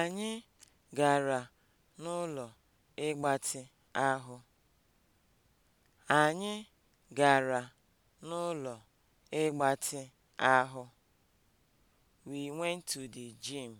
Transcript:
Anyị gara n'ụlọ ịgbatị ahụ. Anyị gara n'ụlọ ịgbatị ahụ. We went to the gym.